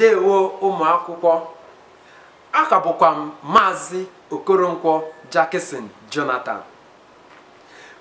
ndewo ụmụ akwụkwọ aka m maazị okoronkwo jackson jonathan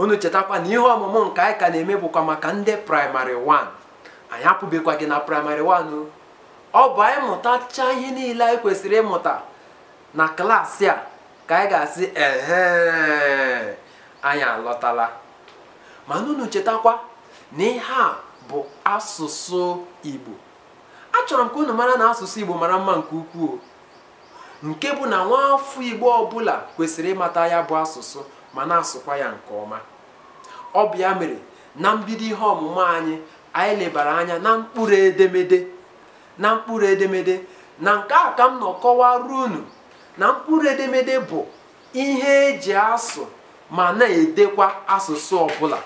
unu chetakwa na ihe ọmụmụ nke anyị ka na-eme bụkwa maka ndị praịmarị 1 anyị apụbekwa gị na praịmarị 1 ọ bụ anyị mụtacha ihe niile anyị kwesịrị ịmụta na klaasị a ka anyị ga-asị ehe anyị alọtala mana unu chetakwa na ihe a bụ asụsụ igbo achọrọ m ka unu mara na asụsụ igbo mara mma nke ukwuu nke bụ na nwaafọ igbo ọbụla kwesịrị ịmata ya bụ asụsụ ma na-asụkwa ya nke ọma ọ bụ ya mere na mbido ihe ọmụmụ anyị anyị lebara anya na mkpụrụ edemede na mkpụrụ edemede na nke a ka m nọ kọwara unu na mkpụrụ edemede bụ ihe eji asụ ma na-edekwa asụsụ ọbụla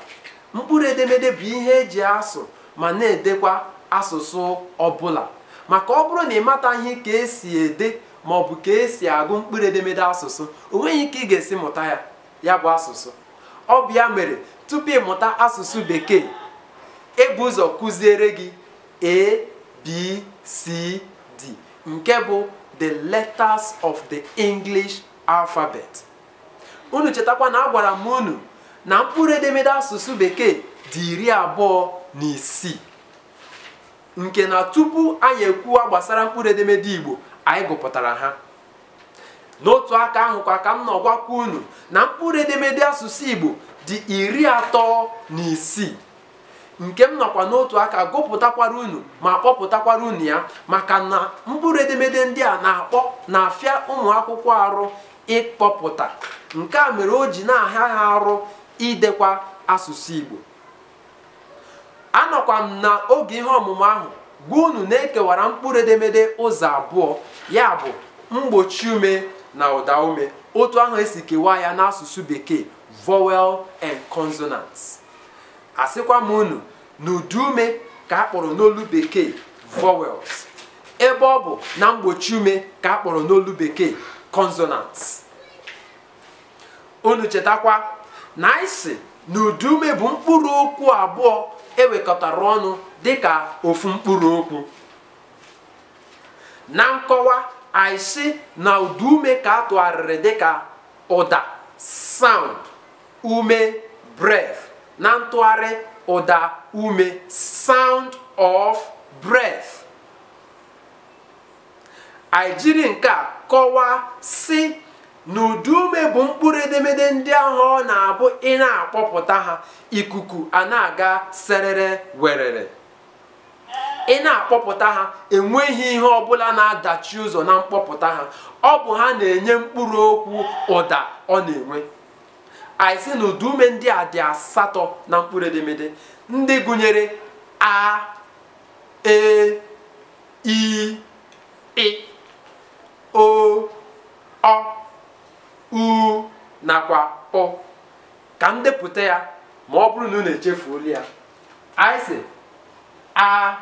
mkpụrụ edemede bụ ihe eji asụ ma na-edekwa asụsụ ọbụla maka ọ bụrụ na ị ihe ka esi ede maọbụ ka esi agụ mkpụrụ edemede asụsụ o nweghị ike ị ga-esi mụta ya ya bụ asụsụ ọ bụ ya mere tupu ịmụta asụsụ bekee ebu ụzọ kụziere gị a d nke bụ the letters of the english alphabet unu chetakwa na agwara m unu na mkpụrụ edemede asụsụ bekee dị iri abụọ na isii nke na tupu anyị ekwuwa gbasara mkpụrụ edemede Igbo anyị gụpụtara ha n'otu aka ahụ ka m nọgwakwa unu na mkpụrụ edemede asụsụ Igbo dị iri atọ na isii nke m nọkwa n'otu aka gụpụtakwara unu ma kpọpụtakwara unu ya maka na mkpụrụ edemede ndị a na-akpọ na-afịa ụmụ akwụkwọ arụ ịkpọpụta nke a mere o ji na-ahịa ha arụ idekwa asụsụ Igbo anọkwa m na oge ihe ọmụmụ ahụ gwa unu na-ekewara mkpụrụ edemede ụzọ abụọ ya bụ mgbochi ume na ụda ume otu ahụ esi kewaa ya n'asụsụ bekee vowel and consonant asịkwa m unu na ụdị ume ka akpọrọ n'olu bekee vowels ebe ọ bụ na mgbochi ume ka akpọrọ n'olu bekee consonants unu chetakwa na isi na ume bụ mkpụrụ okwu abụọ ewekọtara ọnụ dịka ofu mkpụrụ okwu na nkọwa anyị sị na ụda ume ka a tụgharịrị dịka ụda sound ume breath na ntụgharị ụda ume sound of breath anyị jiri nke a kọwaa sị na ume bụ mkpụrụ edemede ndị ahụ ọ na-abụ ị na-akpọpụta ha ikuku a na-aga serere werere ị na-akpọpụta ha enweghị ihe ọbụla na-adachi ụzọ na mkpọpụta ha ọ bụ ha na-enye mkpụrụ okwu ụda ọ na-enwe anyị sị na ume ndị a dị asatọ na mkpụrụ edemede ndị gụnyere a e i e, o ọ u nakwa ọ ka m depụta ya ma ọ bụrụ na unu echefuola ya anyị a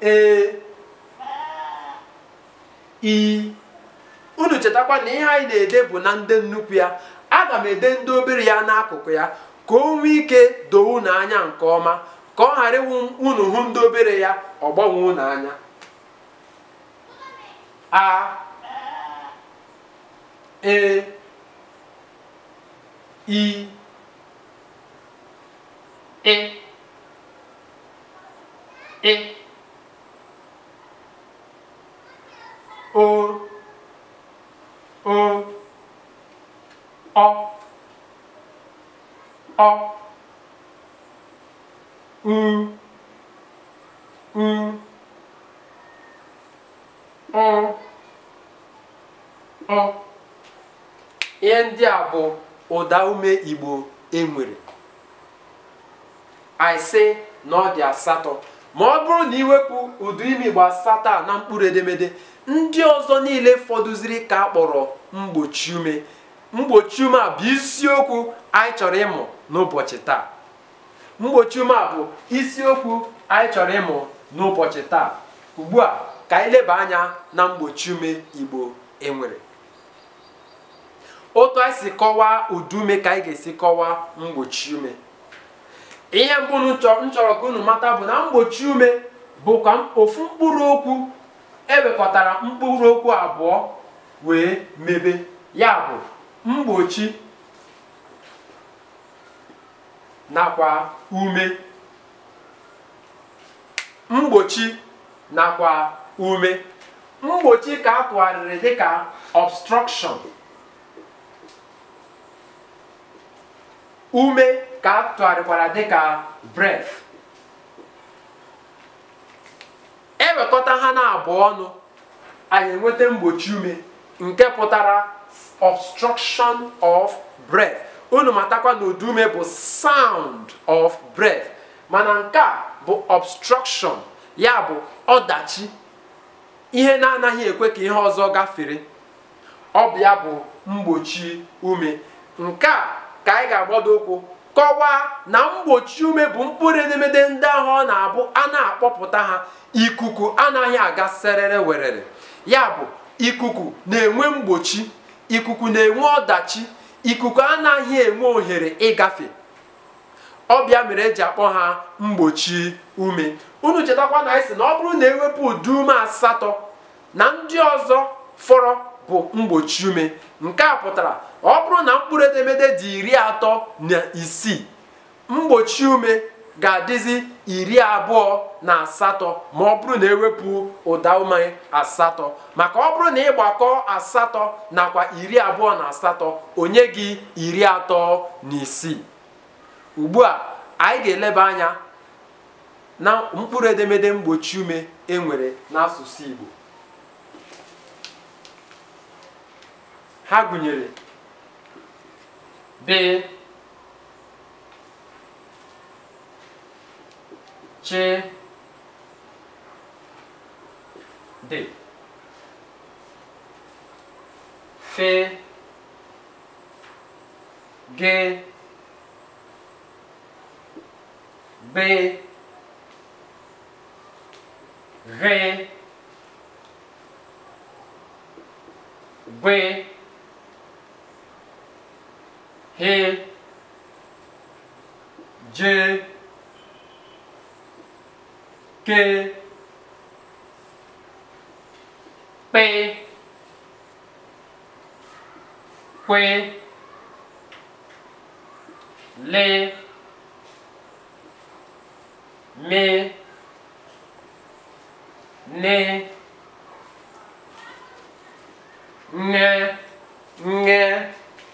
e i unu chetakwa na ihe anyị na-ede bụ na ndị nnukwu ya aga m ede ndị obere ya n'akụkụ ya ka o nwee ike doo unu anya nke ọma ka ọ ghara ịwụ unu hụ ndị obere ya ọ gbanwe unu anya a A E A A O O O O U U O O ihe ndị a bụ ụda ume igbo enwere aịsị na ọ dị asatọ ma ọ bụrụ na iwepụ ụdị ime igbo asatọ na mkpụrụ edemede ndị ọzọ niile fọdụziri ka a kpọrọ mgbochi ume mgbochi ume a bụ isiokwu anyị chọrọ ịmụ n'ụbọchị taa mgbochi ume bụ isiokwu anyị ka anyị anya na mgbochi ume igbo enwere otu anyị si kọwaa udume ka anyị ga-esi kọwaa mgbochi ume ihe mbụ m ka unu mata bụ na mgbochi ume bụkwa ofu mkpụrụ okwu ewekọtara mkpụrụ okwu abụọ wee mebe ya bụ mgbochi nakwa ume mgbochi nakwa ume mgbochi ka a tụgharịrị dịka obstruction ume ka a tụgharịkwara dịka breath ewekọta ha na-abụọ ọnụ anyị enweta mgbochi ume nke pụtara obstruction of breath unu matakwa na ụdị ume bụ sound of breath mana nke a bụ obstruction ya bụ ọdachi ihe na-anaghị ekwe ka ihe ọzọ gafere ọ bụ ya bụ mgbochi ume nke a ka anyị ga-agbado ụkwụ kọwaa na mgbochi ume bụ mkpụrụ edemede ndị ahụ ọ na-abụ a na-akpọpụta ha ikuku anaghị aga serere werere ya bụ ikuku na-enwe mgbochi ikuku na-enwe ọdachi ikuku anaghị enwe ohere ịgafe ọbịa mere eji akpọ ha mgbochi ume unu chetakwa na anyị sị na ọ bụrụ na ewepụ ụdị ume asatọ na ndị ọzọ fọrọ bụ mgbochi ume nke a pụtara ọ bụrụ na mkpụrụ edemede dị iri atọ na isii mgbochi ume ga-adịzi iri abụọ na asatọ ma ọ bụrụ na ewepụ ụda ume asatọ maka ọ bụrụ na ịgbakọ asatọ nakwa iri abụọ na asatọ onye gị iri atọ na isii ugbu a anyị ga-eleba anya na mkpụrụ edemede mgbochi ume e n'asụsụ Igbo ha gụnyere be chi dị fe ge be re A J K P Q L M N Ng Ng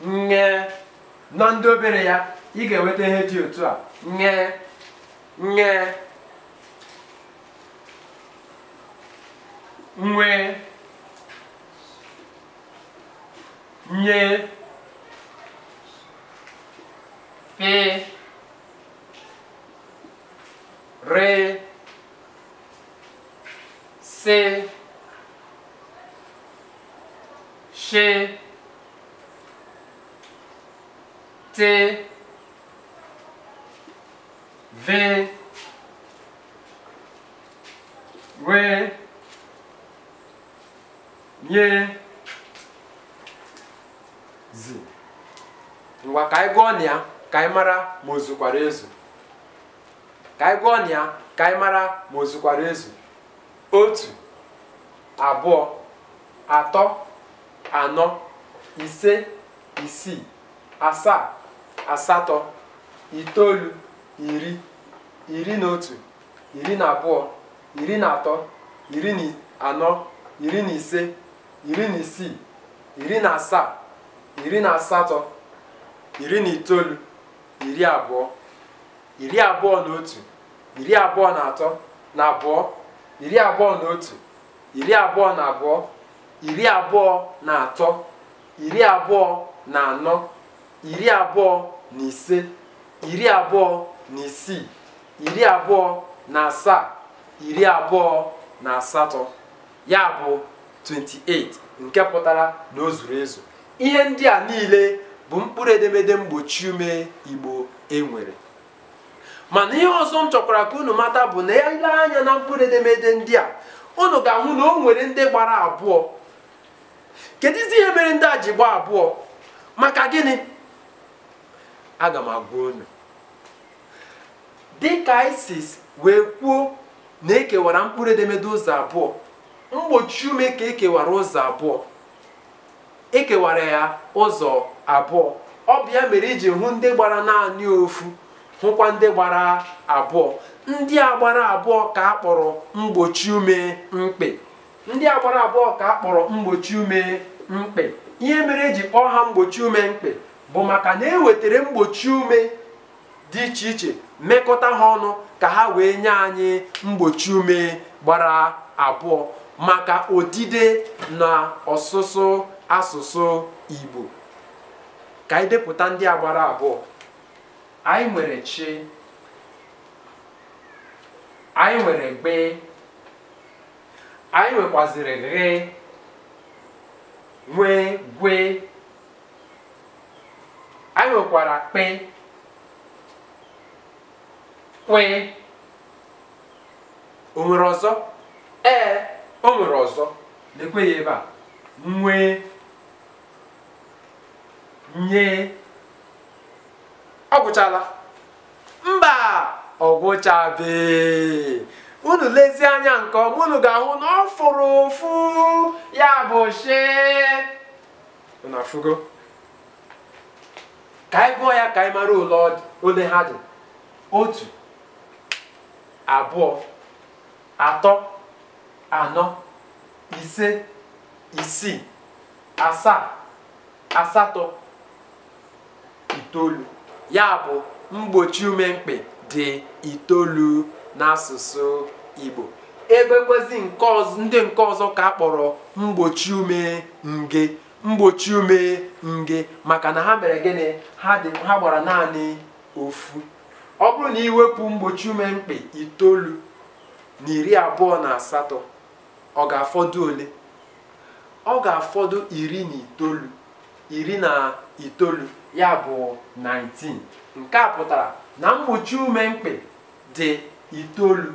Ng na ndị obere ya ị ga-enweta ihe dị otu a nye nye nwee nye pe re se she T V W nye Z ngwa ka anyị gụọ ya ka mara ma ozukwara ezu ka anyị gụọ ya ka anyị mara ma ozukwara ezu otu abụọ atọ anọ ise isii asaa asatọ itoolu iri iri na otu iri na abụọ iri na atọ iri na anọ iri na ise iri na isii iri na asaa iri na asatọ iri na itoolu iri abụọ iri abụọ na otu iri abụọ na atọ na abụọ iri abụọ na otu iri abụọ na abụọ iri abụọ na atọ iri abụọ na anọ iri abụọ na ise iri abụọ na isii iri abụọ na asaa iri abụọ na asatọ ya bụ 28 nke pụtara na o zuru ezu ihe ndị a niile bụ mkpụrụ edemede mgbochi ume igbo enwere mana ihe ọzọ m chọkwara ka unu mata bụ na ya ile anya na mkpụrụ edemede ndị a unu ga-ahụ na o nwere ndị gbara abụọ kedụzi ihe mere ndị a ji gbaa abụọ maka gịnị aga m agwa unu dịka isis wee kwuo na ekewara mkpụrụ edemede ụzọ abụọ mgbochi ume ka ekewara ụzọ abụọ ekewara ya ụzọ abụọ ọ mere iji hụ ndị gbara naanị ofu hụkwa ndị gbara abụọ ndị a gbara abụọ ka akpọrọ mgbochi ume mkpị ndị a abụọ ka a mgbochi ume mkpị ihe mere eji kpọọ ha mgbochi ume mkpị bụ maka na ewetara mgbochi ume dị iche iche mekọta ha ọnụ ka ha wee nye anyị mgbochi ume gbara abụọ maka odide na ọsụsụ asụsụ Igbo ka anyị depụta ndị a gbara abụọ anyị nwere chi anyị nwere gbe anyị nwekwaziri ghe nwee gwee anyị nwekwara kpe kwe o nwere ọzọ ee o ọzọ lekwe ya ebe a nwee nye ọ gwụchala mba ọ unu lezie anya nke ọma unu ga-ahụ na ọ fụrụ ụfụ ya bụ shi unu afụgo ka anyị gụọ ya ka anyị mara ole ha dị otu abụọ atọ anọ ise isii asaa asatọ itoolu ya bụ mgbochi ume mkpị dị itoolu n'asụsụ Igbo ebekwezi ndị nke ọzọ ka a kpọrọ mgbochi ume nge mgbochi ume nge maka na ha mere gịnị ha ha gbara naanị ofu ọ bụrụ na iwepụ mgbochi ume mkpị itoolu na iri abụọ na asatọ ọ ga-afọdụ ole ọ ga-afọdụ iri na itoolu iri na itoolu ya bụ 19 nke a pụtara na mgbochi ume mkpị dị itoolu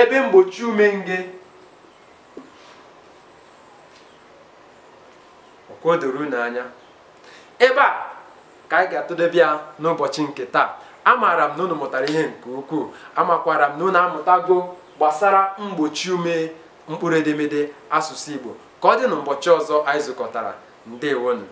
ebe mgbochi ume nge ka o doro unu anya ebe a ka anyị ga-atụdebe ya n'ụbọchị nke taa amaara m na unu mụtara ihe nke ukwuu amakwara m na unu amụtago gbasara mgbochi ume mkpụrụ edemede asụsụ Igbo ka ọ dị na ụbọchị ọzọ anyị zụkọtara ndewonu